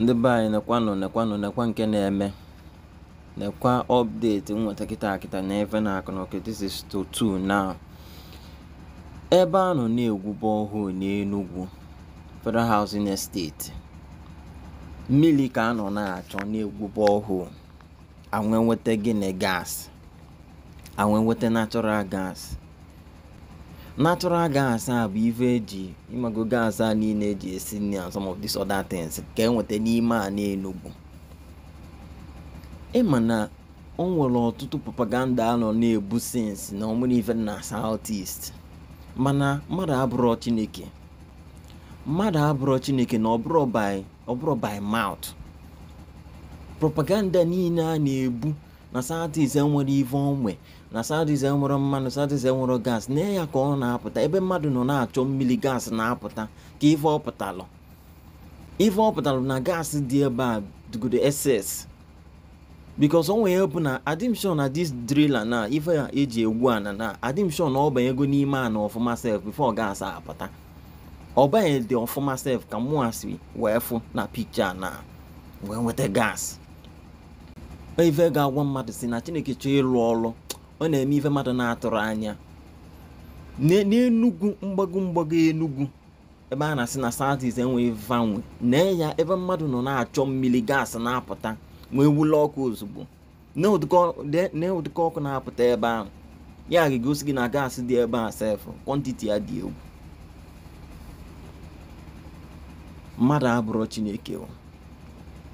ndị be anyị nekwanụ nekwanụ nekwa nke na-eme nekwa ọpdeti nweta kịta akịta na efe na akụ na this is to two now ebe a nọ na-egwube ọhụụ n'enugwu Federal Housing Estate mmiri ka a nọ na-achọ na-egwube ọhụụ anwe nweta gịnị gas anwe nweta natural gas natural gas a bụ ife eji imago gas a niile eji esi nri and some of these other things ka enweta n'ime a n'enugwu ịma na o nwere ọtụtụ propaganda a nọ na-ebu sins na ọmụrụ ife na south east mana mmadụ abụrọ chineke mmadụ abụrọ chineke na ọbụrọ by mouth propaganda niile a na-ebu na sadis enwere ive onwe na sadis enwere mmanụ sadis enwere gas na ya ka ọ na-apụta ebe mmadụ nọ na-achọ mmiri gas na-apụta ka ive ọpụtalụ ive ọpụtalụ na gas dị ebe a dugodo ss bikos o nwere bụ na adimshon na dis drila na ife ya eji egwu ana na adimshon na ọbanyego n'ime ana ọfụma sef bifo gas apụta ọbanye dị ọfụma sef ka mụasị wee fụ na pikcha na wee nweta gas ife ga-agwa mmadụ si na chineke chọọ ịrụ ọrụ ọ na-eme ife mmadụ na-atụrụ anya n'enugwu mgbago mgbago enugwu ebe a na-asị na southeast enweghị vanwe nee ya ebe mmadụ nọ na-achọ mmiri gaasị na-apụta nwee wule ọkụ ozugbo nee ụdịka ọkụ na-apụta ebe ahụ ya ga-egosi gị na gaasị dị ebe a sefụ kwantiti ya dị egwu mmadụ abụrụ chineke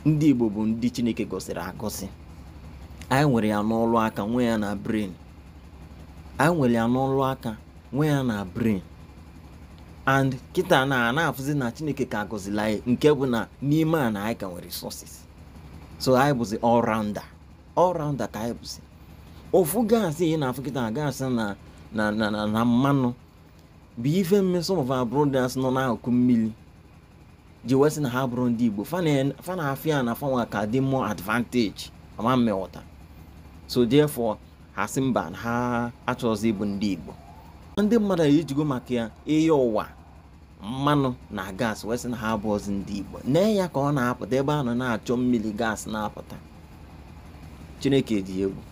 ndị Igbo bụ ndị chineke gosiri agosi anyị nwere ya n'ọlụ aka nwe ya na brain anyị nwere ya n'ọlụ aka nwe ya na brain and kịta na na-afụzi na chineke ka agọzila anyị nke bụ na n'ime a na anyị ka nwere resources so anyị bụzi all rounder ka anyị bụzi ofu gaasị ị na-afụ kịta gaasị na na na na mmanụ bụ ife mme some of our brothers nọ n'akụkụ mmiri ji wee na ha bụrụ ndị igbo fa na-afịa na fanwa ka dị mmụọ advantage ama mmewọta so therefore ha sị mba ha achọghịzị ịbụ ndị Igbo ndị mmadụ ejigo maka ya ihe ụwa mmanụ na gas wee sị na ha abụọzi ndị Igbo nee ya ka ọ na-apụta ebe a nọ na-achọ mmiri gas na-apụta Chineke dị egwu